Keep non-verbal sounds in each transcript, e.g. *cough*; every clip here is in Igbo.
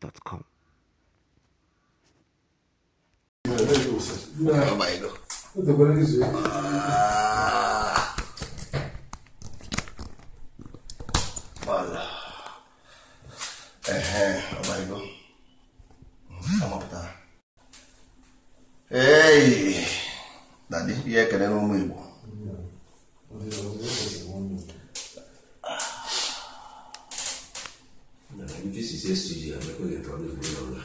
gmail.com. Ee, na dị ihe ekele n'ụmụ Igbo If this is yesterday, I'm not going to problem.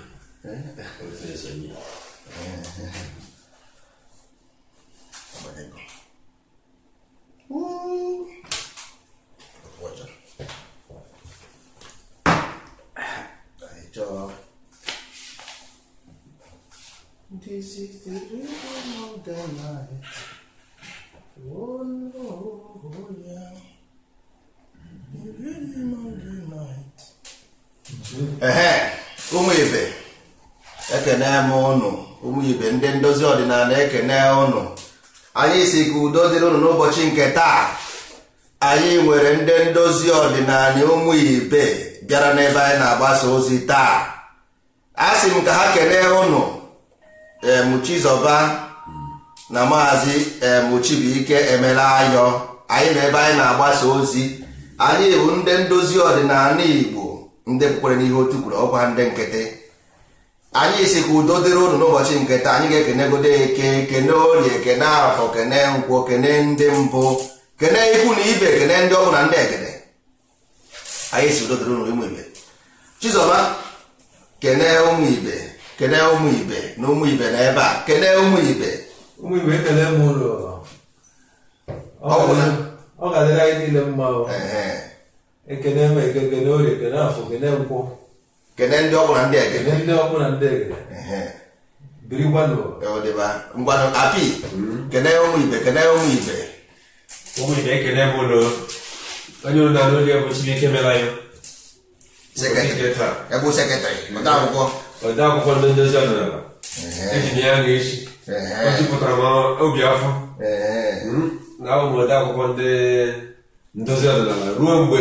Eh? ehe ibe ekene m ụnụ ụmụ ndị ndozi ọdịnala ekene ụnụ anyị si ka udo dịrị ụnụ n'ụbọchị nke taa anyị nwere ndị ndozi ọdịnala ụmụ bịara n'ebe anyị na-agbasa ozi taa a sị m ka ha kene ụnụ emuchizọba na maazị emuchibuike emela ayọ anyị na ebe anyị na-agbasa ozi anyị bụ ndị ndozi ọdịnala igbo ndị kwere n'ihe otu kwuru ọkwa ndị nkịtị anyị si ka udo dịrị unu n'ụbọchị nketa anyị ga-ekenegodo eke kene orie kene afọ kene nkwọ kene ndị mbụ kene ikwu na ibe kene ndị ọgwụ na ndị egede anyị si udo dịrị unu ụmụ ibe Chizọba kene ụmụ ibe kene ụmụ ibe na ụmụ ibe na ebe a kene ụmụ ibe ụmụ ibe ekele m ụlọ ọ ga-adịrị anyị niile mma ekene eme ekene orie ekene afọ ekene nkwụ kene ndị ọkụ na ndị ege ndị ọkụ na ndị ege biri gwanụ e ngwanụ api hmm. kene ụmụ ibe kene ụmụ ibe ụmụ ibe ekene bụ ụlọ onye ụlọ na oge bụ chineke mela ya ebe odeakwụkwọ ndị ndozi ọdịnala eji ya ga-echi o m obi afọ hmm. na ụmụ akwụkwọ ndị ndozi ọdịnala ruo mgbe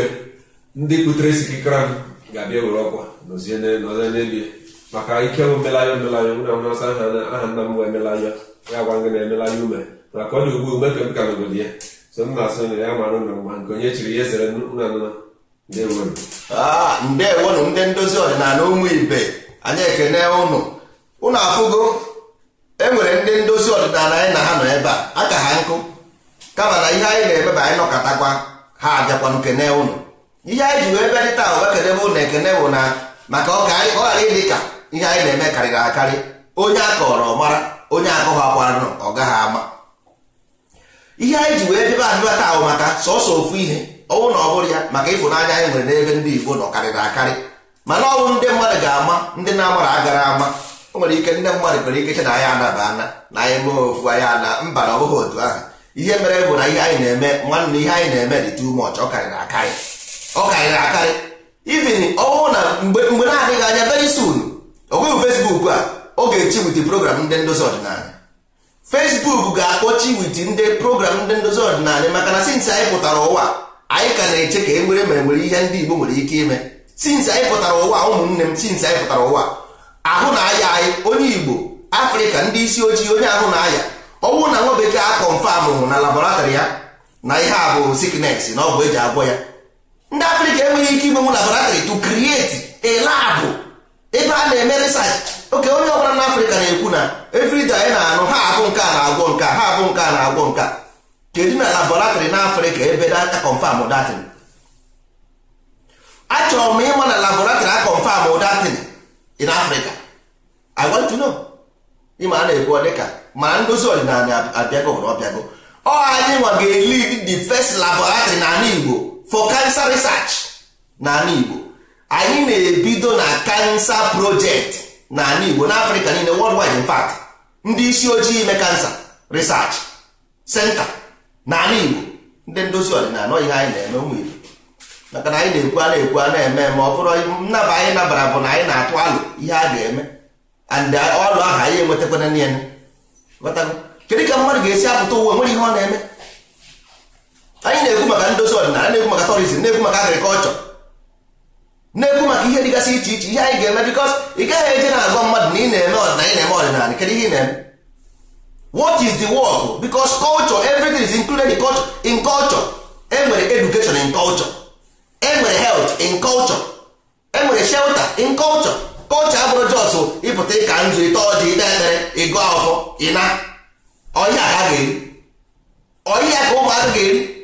ndị isi sikikere ahụ ga-abịa were ọkwa nọzie n'elie maka ike bụ mmelanya mmelanya nwere ahụ na-asa aha nna m emelanya ya gwa gị na-emelanya ume maka ọ dị ugbu mgbe ka m ka ya so m na-asụ na ya mara ụlọ mgba nke onye chiri ya ezere nanụna ndewonu ah, ndewonu ndị ndozi ọdịnala ụmụ ibe anyị ekene ụnụ ụnụ afụgo enwere ndị ndozi ọdịnala anyị na ha nọ a aka ha nkụ ihe anyị na emeba anyị nọkọtakwa ụnụ ihe anyị ji wee dị taa ụwa kedebe ekene bụ na maka ọ ghara ịdị ka ihe anyị na-eme karịrị akarị onye akọrọ mara onye akọghị akwaranụ ọ gaghị ama ihe anyị ji wee debe abịba taa bụ maka sọsọ ofu ihe ọnwụ na ọ bụrụ ya maka ịfụnanya anyị nwere n'ebe ndị Igbo nọ karịrị akarị mana ọnwụ ndị mmadụ ga-ama ndị na-amara agara ama o nwere ike ndị mmadụ nwere ike che na anyị anaba ana na anyị mee ofu anyị ana mba na ọ otu ahụ ihe mere bụ na ihe anyị na-eme nwanne ihe anyị na-eme dị too ọ karịrị akarị ọ karịrị akarị even ọnwụ na mgbe na-adịghị anya very soon ọnweghị a oge echi wit program ndị ndozi ọdịnala fesbuk ga-akpọchi wit ndị program ndị ndozi ọdịnala maka na since anyị pụtara ụwa anyị ka na-eche ka e nwere mere nwere ihe ndị Igbo nwere ike ime since anyị pụtara ụwa ụmụnne m since anyị pụtara ụwa ahụ na aya anyị onye Igbo Afrịka ndị isi ojii onye ahụ na aya ọnwụ na nwa bekee a kọnfam na laboratrị ya na ihe a bụ sickness na ọgwụ eji agwọ ya ndị afrịka enweghị ike inwe laboratory to create a lab ebe a na-eme research oke onye ọbụla na afrịka na-ekwu na everyday anyị na-anụ ha abụ nke a na-agwọ nke ha abụ nke a na-agwọ nke kedu na laboratrị na afrịka ebe data confirm datin achọrọ m ịma na laboratory a confirm datin in afrịka i ịma a na-ekwu ọ dịka ndozi ọdịnala abịago ọbịago ọ anyị nwa ga eli the first laboratory na ala igbo for cancer research n'ala Igbo anyị na-ebido na cancer project n'ala Igbo n'Africa niile worldwide in fact ndị isi ojii ime cancer research center n'ala Igbo ndị ndozi ọdịnala ihe anyị na-eme ụmụ maka na anyị na-ekwu a na-ekwu a na-eme ma ọ bụrụ nnaba anyị nabara bụ na anyị na-atụ alụ ihe a ga-eme and ọlụ ahụ anyị enwetakwana ya kedu ka mmadụ ga-esi apụta ụwa nwere ihe ọ na-eme anyị na-ekwu maka ndozi ọdịnala na-ekwu maka tourism na-ekwu maka agrikọlchọ na-ekwu maka ihe dịgasị iche iche ihe anyị ga-eme bikos ị gaghị eje na-agwa mmadụ na ị na-eme ọdịnala ị na-eme ọdịnala kedu ihe ị na-eme what is the work because culture everything is included in culture in culture enwere education in culture enwere health in culture enwere shelter in culture culture abụrụ jos ịpụta ịka nzu ịta ọjị ịta ekpere ịgụ afọ ịna ọhịa ka ụmụaka ga-eri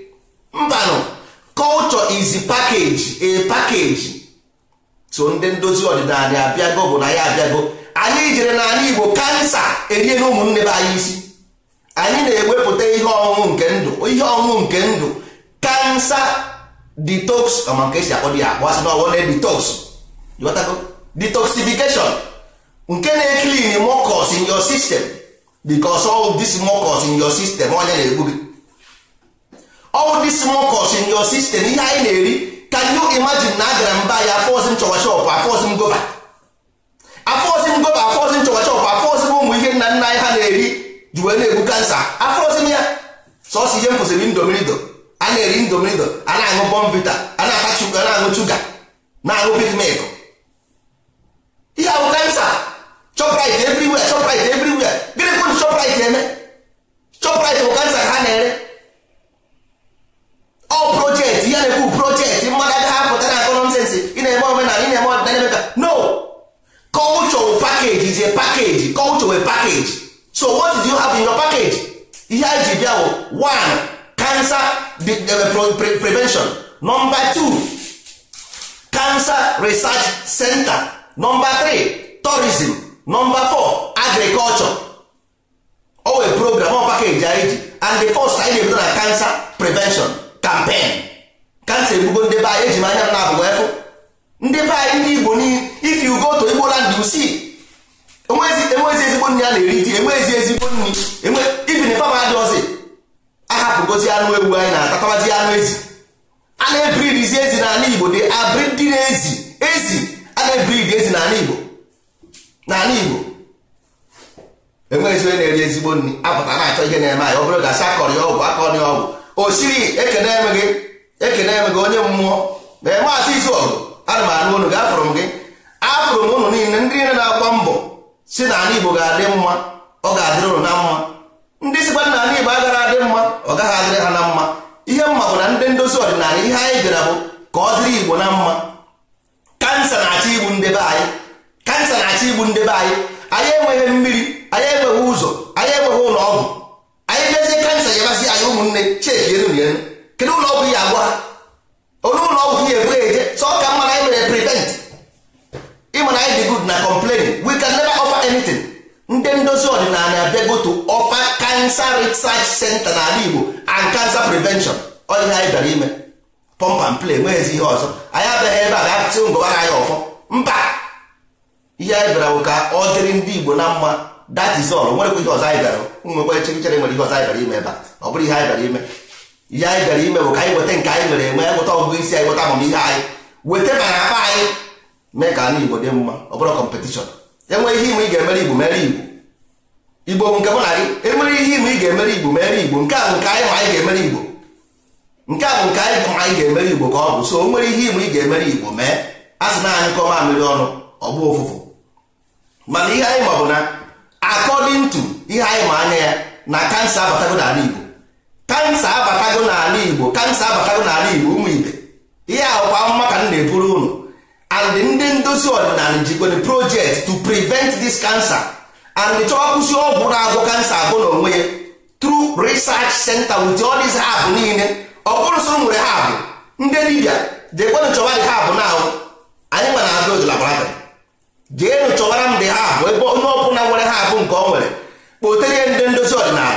mbanụ culture is package a package so ndị ndozi ọdịda anyị abịago bụ na ya abịago anyị jere na anyị Igbo kansa erie ụmụnne be anyị isi anyị na-ewepụta ihe ọṅụṅụ nke ndụ ihe ọṅụṅụ nke ndụ kansa detox ọma nke esi akpọ dị akpọ asị na ọwụ na detox detoxification nke na-ekilin mocos in your system because all this mocos in your system onye na-egbu gị all this mucus in your system ihe anyị na-eri ka you imagine na agara mba ba ya afọzi m chọwa chọpụ afọzi ngoba gova afọzi m gova afọzi m chọwa chọpụ afọzi ụmụ ihe nna nna anyị ha na-eri ji wee na-egbu kansa afọzi m ya sọsọ ihe m fụsịrị indomirido a na-eri indomirido a na-aṅụ bọmvita a na chuga na-aṅụ chuga na-aṅụ pigmek ihe ahụ kansa chọprit everywhere chọprit everywhere gịnị kwụ chọprit eme chọprit bụ kansa ka ha na-ere ọ projekti ya na-ekwu projekti mmadụ agaghị apụta na akọnọmsensị ị na-eme omenala ị na-eme ọdịnala emeka no culture package is a package culture a package so what do you have in your package ihe anyị ji bịa bụ one cancer prevention number two cancer research center number three tourism number four agriculture owe program ọ package anyị e ji and the first anyị na-ebido na cancer prevention kampen kansa egbugo ndị be anyị eji m anya m na-abụgo efu ndị be anyị ndị igbo if you go to igbo land you enwezi ezigbo nri a na-eri di enwezi ezigbo nri even fama adịọzi ahapụgozi anụ ewu anyị na-atatawazi anụ ezi a na-ebridizi ezi n'ala igbo dị abridi na ezi ezi a na-ebridi ezi n'ala igbo n'ala igbo enwezi onye na-eri ezigbo nri apụta na-achọ ihe na-eme anyị ọ bụrụ gasị akọrọ ya ọgwụ akọrọ ya ọgwụ o siri ekene emeghị ekene emeghị onye mmụọ ee maazị izuọgụ ana m anụ unu gafụrụ m gị afụrụ m ụnụ niile ndị niile na-agba mbọ si na ala igbo ga-adị mma ọ ga-adịrị ụnụ na mma ndị sikwa na ala igbo agara adị mma ọ gaghị adịrị ha na mma ihe mma bụ na ndị ndozi ọdịnala ihe anyị bịara bụ ka ọ dịrị igbo na mma kansa na-achọ igbu ndebe anyị kansa na-achọ igbu ndebe anyị anyị enweghị mmiri anyị enweghị ụzọ anyị enweghị ụlọ ọgwụ anyị mezie kansa yabasị anyị ụmụnne chekienu ya kedu ụlọ ọgwụ ya agwa onye ụlọ ọgwụ ya ebue eje so ka mma na anyị mere prevent ịma na anyị dị good na complain we can never offer anything ndị ndozi ọdịnala go to offer cancer research center n'ala Igbo and cancer prevention ọ ihe anyị bịara ime pump and play nweghịzi ihe ọzọ anyị abịaghị ebe a ga-apụtị ngọbara anyị ọfọ mba ihe anyị bịara bụ ka ọ dịrị ndị Igbo na mma that is all nwere ihe ọzọ anyị gara nwekwa chịrịchịrị nwere ihe ọzọ anyị gara ime ebe a ọ bụrụ ihe anyị gara ime ihe anyị gara ime bụ ka anyị weta nke anyị nwere enwe anyị nweta ọgụgụ isi anyị nweta amamihe anyị weta ma na akpa anyị mee ka anyị igbo dị mma ọ bụrụ kọmpetishọn enwe ihe ime ị ga-emere igbo mere igbo igbo nke mụ na gị enwere ihe ime ị ga-emere igbo mere igbo nke a bụ nke anyị ma anyị ga-emere igbo nke a bụ nke anyị ma anyị ga-emere igbo ka ọ bụ so nwere ihe ime ị ga-emere igbo mee a sị na anyị kọọ mamịrị ọnụ ọ bụ ụfụfụ mana ihe anyị ma na according to ihe anyị ma anya ya na kansa abatago n'ala Igbo kansa abatago n'ala Igbo kansa abatago n'ala Igbo ụmụ ibe ihe ahụkwa amụma ka m na-eburu ụnụ and ndị ndozi ọdịnala jikwere project to prevent this cancer and chọọ kwụsị ọgwụ na-agwọ kansa abụ na onwe ya through research center with all hab niile ọkpụrụ soro nwere hab ndị dibịa jekwenu chọba dị hab na ahụ anyị nwa na-agụ laboratrị jee chọwara ndị ha bụ ebe onye ọbụla nwere ha abụ nke ọ nwere kpotere ndị ndozi ọdịnala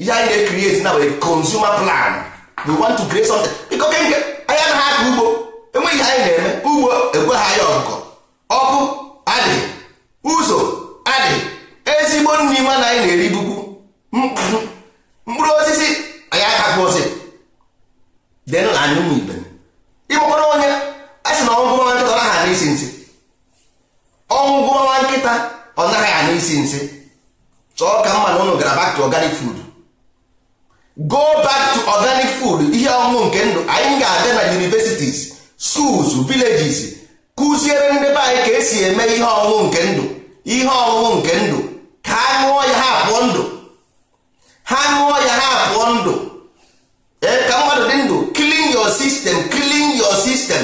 ihe anyị na-ekrieti na wee consumer plan we want to create something biko kenge anya na ha aka ugbo enweghị anyị na-eme ugbo ekweghị anyị ọgụgọ ọkụ adị ụzọ adị ezigbo nri ma na anyị na-eri bukwu mkpụrụ osisi anyị akapụzi denụ na anyụmụ ibe system clean your system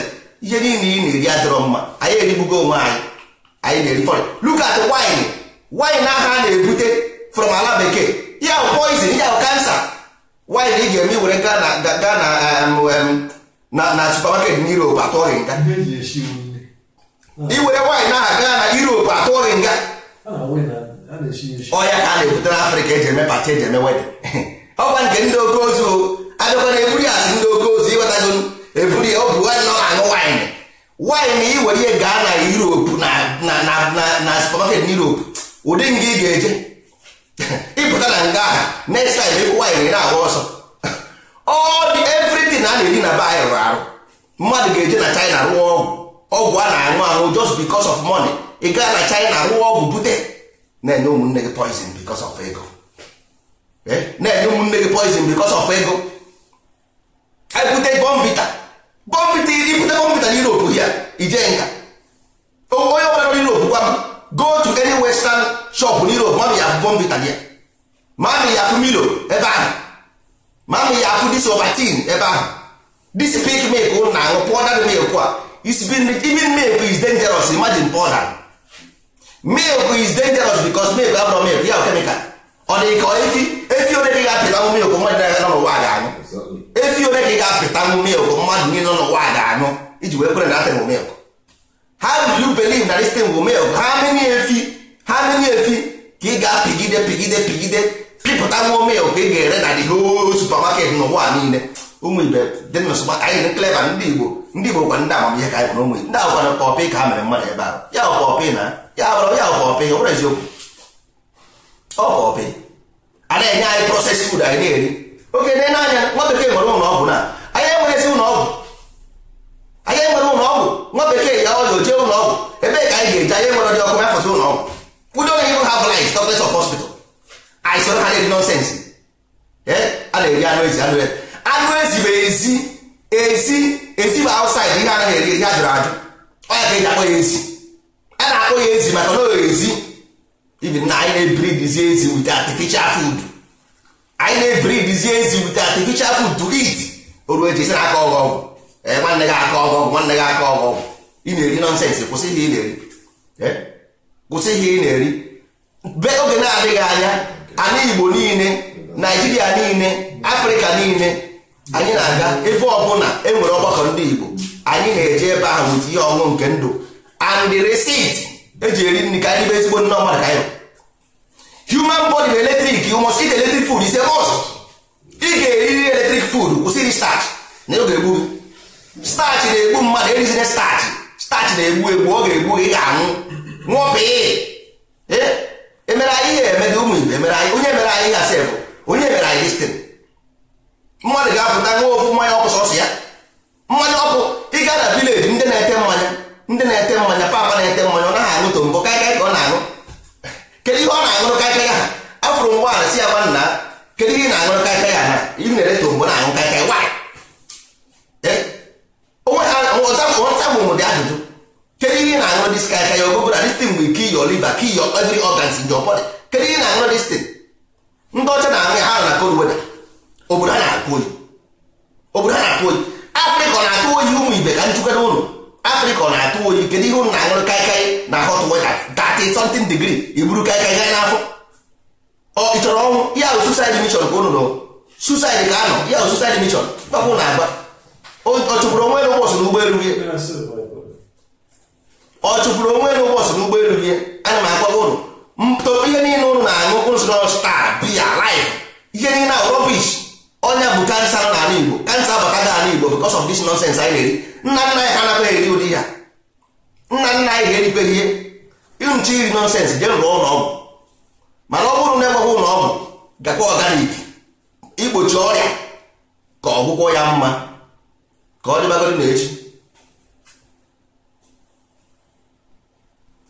ihe niile ị na-eri adịrọ mma anyị erigbugo onwe anyị anyị na-eri look wine wine a na-ebute from ala bekee ya poison ya wine ị ga-eme were gaa na gaa na na supermarket na Europe nga iwere wine aha gaa na Europe atụọghị nga ọya ka a na-ebute na Afrịka eji eme pati eji eme wedin *laughs* ọkwa nke ndị oke ozu abịakwana eburu ya asị ndị oke ozu ịghọtago eburu ya ọ ọ na-aṅụ waịn waịn ị were ihe gaa na Europe na supermarket n'Europe ụdị nga ị ga-eje *laughs* ịpụta na nga ahụ next time ịfụ waịn ị na-agba ọsọ *laughs* ọ dị a na-eri na be anyị rụrụ arụ mmadụ ga-eje na China rụọ ọgwụ ọgwụ a na-aṅụ aṅụ just because of money ị gaa na China rụọ ọgwụ bute na-enye ụmụnne gị poizin because of ego eh? na-enye ụmụnne gị poison because of ego anyị bute bọmbita bọmbita ibute bọmbita na europe hia ijee nga onye ọbụla n'europe gwa m go to any western shop e e na europe ma ya afụ bọmbita gị ma ya afụ milo ebe ahụ ma amị ya afụ dis ebe ahụ dis pik milk ụlụ na-aṅụ powdered milk a even milk is dangerous imagine powder milk is dangerous because milk abụrụ milk ya chemical ọ dị ka efi efi onye dị ga apịla anwụ milk mmadụ na-aga n'ụwa a ga anụ. efi ole ka ị ga-apịta milk mmadụ niile n'ụwa ga-aṅụ iji wee kwere na atịn milk how do you believe na this thing will milk ha many efi ha many efi ka ị ga-apịgide pịgide pịgide pịpụta nwa milk ị ga-ere na dị whole supermarket n'ụwa niile ụmụ ibe dị nsogbu anyị dị cleva ndị igbo ndị igbo gwa ndị amamihe ka anyị ụmụ ndị agwa na ka ha mere mmadụ ebe ahụ ya pọpị na ya ọbụrụ ya pọpị ọ bụrụ eziokwu ọ pọpị a na-enye anyị proses fud anyị na-eri oge dị n'anya nwa bekee nwere ụlọ ọgwụ na anyị esi ụlọ ọgwụ anyị enwere ụlọ ọgwụ nwa bekee ya ọya jee ụlọ ọgwụ ebee ka anyị ga-eji anya nwere dị ọkụ mefọta ụlọ ọgwụ kwụdo na ihu ha blight doctors of hospital anyị soro ha na-eri nonsens eh, a na-eri anụ ezi anụ ezi anụ ezi bụ ezi ezi ezi bụ outside ihe anaghị eri ihe a ajụ ọ ya ka eji akpọ ya ezi a na-akpọ ya ezi maka na ezi ibi na anyị na-ebiri dizi ezi with artificial food anyị na-ebiridizie ebiri ezi wute artificial food to eat oru eji sịra aka ọgọ eh, ọgwụ nwanne gị aka ọgọ ọgwụ nwanne gị aka ọgọ ọgwụ ị na-eri nọnsensị kwụsị ihe ị na-eri eh? kwụsị ihe ị na-eri be oge na-adịghị anya ana Igbo niile Naijiria niile Afrịka niile anyị na-aga ebe ọbụla enwere ọgbakọ ndị Igbo anyị na-eje ebe ahụ wute ihe ọṅụ nke ndụ and the eji e eri nri ka anyị bụ ezigbo ndị ọmadụ ka anyị human body bụ eletrik you must eat electric food is a must ị ga-eriri electric food kwụsịrị starch na ọ ga-egbu starch na-egbu mmadụ erizire starch starch na-egbu egbu ọ ga-egbu ị ga-anwụ nwụọpị e? emere anyị ihe emede ụmụ igbo emere anyị onye mere anyị gasị bụ onye mere anyị listin mmadụ ga-apụta nwa ofu mmanya ọkụ sọsọ ya mmanya ọkụ ịga na vileji ndị na-ete mmanya ndị na-ete mmanya papa na-ete mmanya ọ naghị aṅụ to mbụ karịa ka ọ na anụ kedu ihe ọ na-aṅụrụ kaikai ha afụrụ ụgbọala si ya gwa nna kedu ihe ị na-aṅụrụ kaikai ha ị na-ere tombo na-aṅụ kaikai dị e? ihe ị na-aṅụrụ ya distin mgbe kill your liver kill your ọgans kedu ihe ị na-aṅụrụ distin ndị ọcha na-aṅụ ya ha na obodo ha na-akụ oyi obodo ha na-akụ oyi afrịka ibe ka nchukwere ụlọ afrịka na-atụ oyi kedu ihe unu na-aṅụrụ kaikai na hot water 30 something degree iburu e kaikai gaa n'afọ ọ oh, ịchọrọ ọnwụ ya ahụ suicide mission ka unu nọ ka anọ ya ahụ suicide mission papụ na-agba ọ chụpụrụ onwe n'ụbọchị n'ụgbọelu ya ọ chụpụrụ onwe n'ụbọchị